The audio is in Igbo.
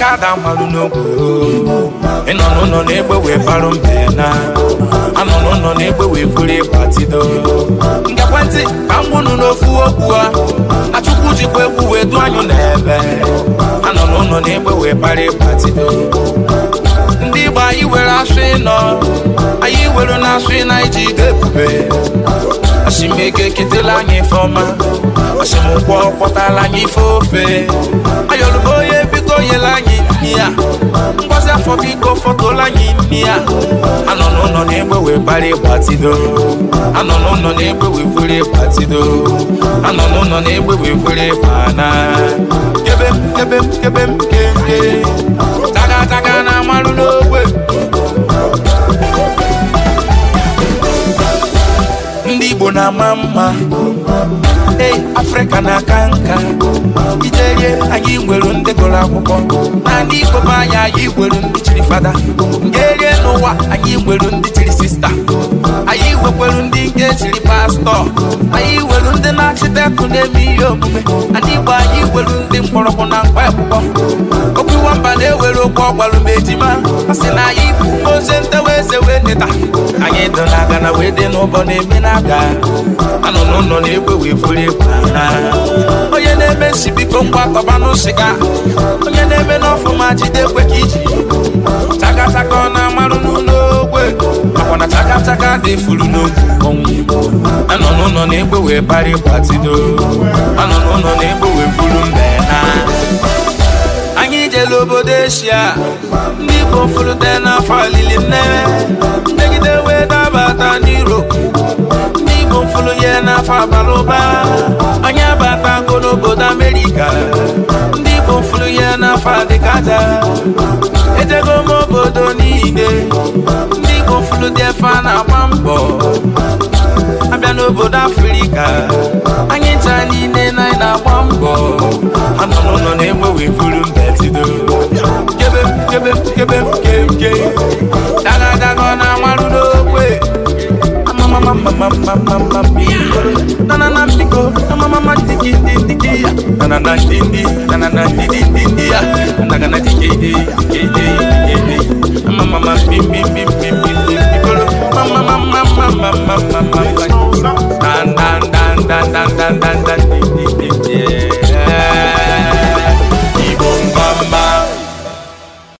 aka ada mmalụ n'ogwe ịnọ n'ụlọ na-egbe wee barụ mbe na anọ n'ụlọ na-egbe wee buru do. tido ngekwentị ka m gwụnụ n'ofu okwu a achụkwu jikwa egwu wee dụ anyụ n'ebe anọ n'ụlọ na-egbe wee bara ịgba tido ndị Igbo anyị were asụ ịnọ anyị were na asụ ịna iji ide ebube asimego eketela anyị ife ọma asimụkwọ kpọtala anyị ife ofe ayọrụbo biko fọtụla anyị imi ya anọ n'ụlọ na-egbe wee bara anọ n'ụlọ na-egbe wee furu anọ n'ụlọ na-egbe wee furu kebe m kebe m na-ama mma Ee, Afrịka na-aka nka ijerie anyị nwere ndị gụrụ akwụkwọ na ndị Igbo anyị anyị nwere ndị chiri fada ngerie n'ụwa anyị nwere ndị igbekwelu ndị nke jiri pastọ anyị iwelu ndị na-achịtekụ na-eme ihe omume ndị igbo anyị iwelu ndị mkpọrọgwụ na mkpa ekpụkpọ okwu nwamba na-ewere okwu ọgbalụ ma ejima sị na anyị bụ ozi ntewe eze wee neta anyị dụ naga aga na wee dị n'ụbọ na-eme na aga anọ n'ụlọ na-egwe wee furu egwu onye na-eme nsi biko ngwa kọbanụ sịga onye na-eme n'ọfụma jide ekwe ka iji chakachaka ọ na-amarụ n'ụlọ aka dị furu n'otu ọnwụ anọ n'ụlọ na-egbe bari gbatido anọ n'ụlọ na-egbe wee mbe na anyị jere obodo eshia ndị igbo furute n'afọ alili nnewe mmegide wee dabata n'iroopu ndị igbo furu ya n'afọ abalị ụba anyị abatago n'obodo amerika ndị igbo furu ya n'afọ adịkaja ejego m obodo niile ndị igbo furu dị a na mbọ abịa n'obodo afrịka anyị ncha niile na anyị na-agba mbọ ha n'ụlọ na-enwe wee mbetido kebe kebe kebe kemke na amarụ n'okwe